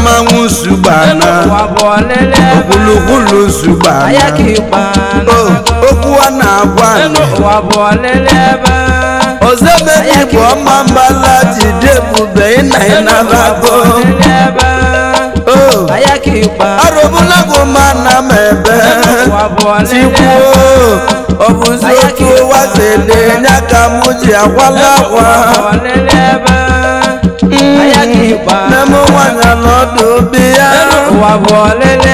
mmanwụ sugbana okpulukwulu sugbana okwu a na-agwa ozebedi bụ ọma mbala jidebube ịnaịnarago arụbụla bụ mana m ebe tikwuo ọ bụzi otu ụwa si ele nya ka m ji agwala akwa Babu alele